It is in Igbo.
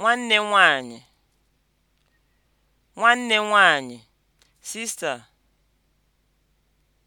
nwanne nwanyị nwanne nwanyị (sister)